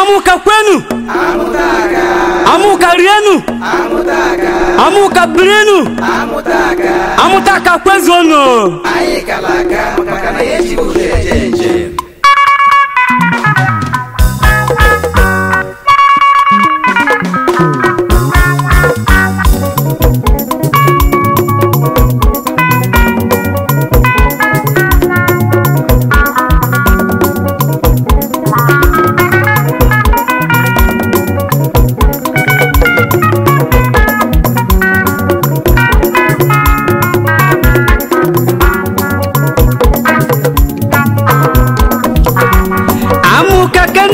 amuka kwenu amuka rienu amuka brinu amutaka kwezono aikalaka makana yesi kuzejenjeni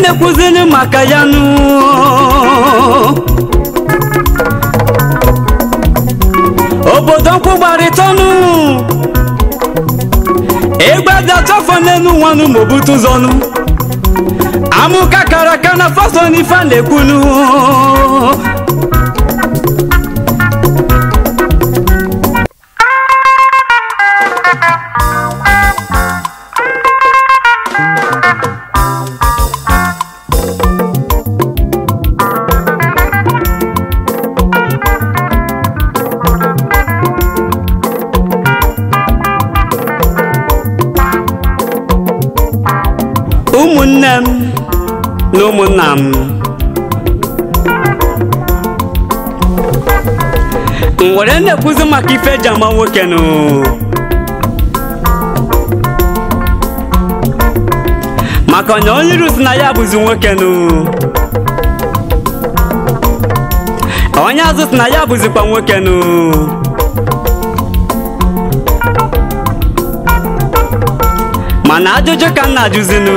na-ekwuzili maka ya nụ obodo nkwụ gbarịta ọnụ ịgbadachafọ n'elu nwanụ ma obute amụka kara aka na fason ife a na-ekwunu ụmụnne m na ụmụnna m were na-ekwuzi maka ife eji nwoke nụ maka na onye ruzi na ya bụzi nwoke nụ onye azụ si na ya bụzikwa nwoke nụ mana ajụjụ ka nna na-ajụzinu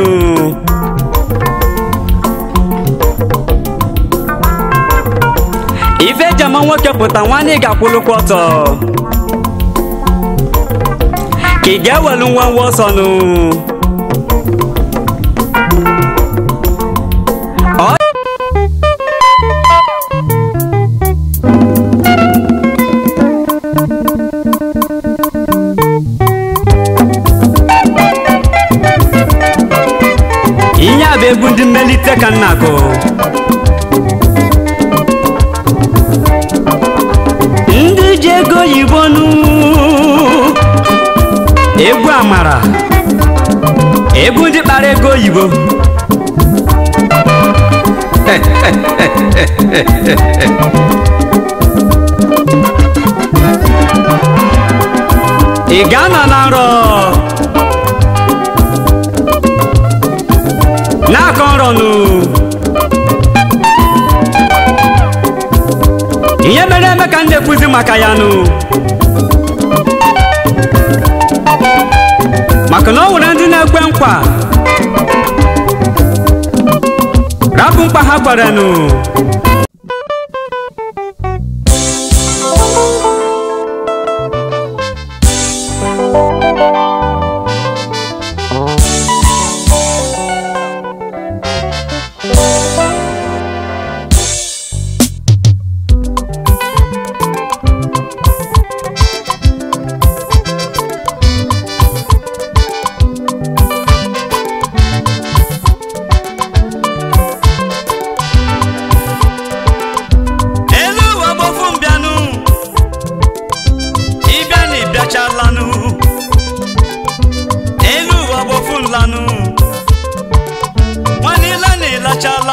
ife jama nwoke pụta nwanne ị ga-akwụlụkwa ọtọ ka ị ga-ewelu nwa nwa ọsọ nụ ihe a bụ egwu ndị mmelite ka nna gụ ndị ji ego oyibo nụ egwu amara egwu ndị kpara ego oyibo ị ga-anọ na nrọ n'aka nụ. ihe mere eme ka m na maka ya nụ maka na ọ nwere ndị na-ekwe nkwa rapụ mkpa ha nụ.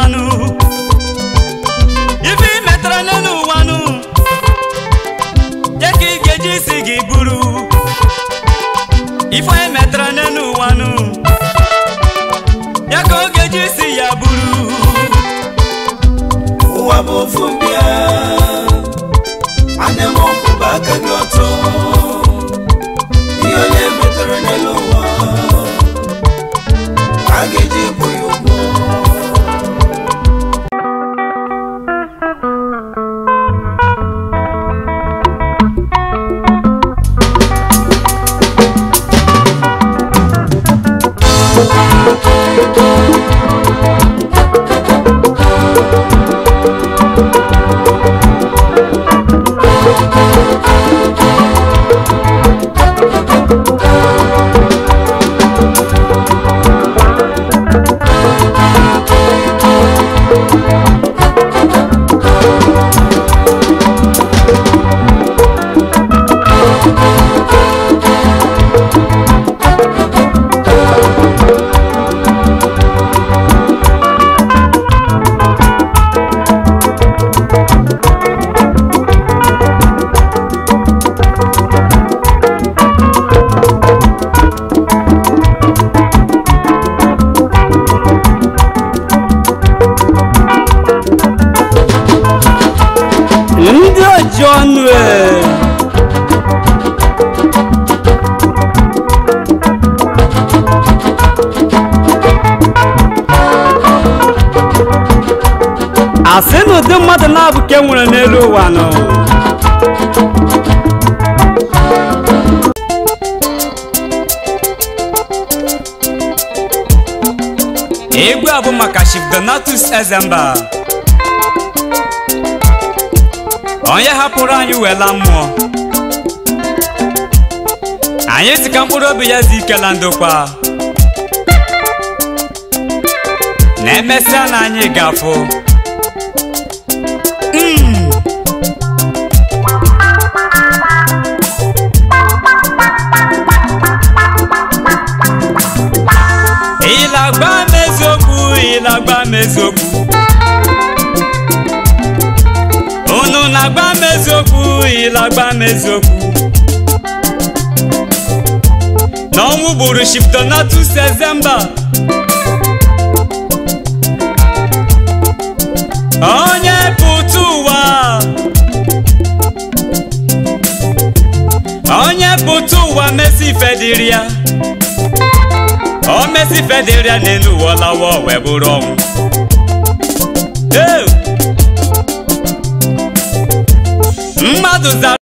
ọlanụ ife ị metara n'elu ụwanụ geji ka ị isi gị buru ife ị e metara n'elu ụwanụ ya ka isi ya buru ụwa bụ ofu mbịa ndị oji ọnụ asi na ụdị mmadụ na-abụ ke n'elu ụwa nọ egwu a bụ maka Chief Donatus Ezemba onye hapụrụ anyị wela mmụọ anyị si ka mkpụrụ obi ya dị ike na ndokwa na emesịa na anyị gafụ hmm. ịlagba na eziokwu ịlagba ịlagba m eziokwu ịlagba m eziokwu n'ọnwụ gburu Shiftonatus Ezemba onye putu ụwa onye pụta ụwa mesi fediri ya o mesi fediri ya n'elu ụwa lawa ọnwụ mmadụ zara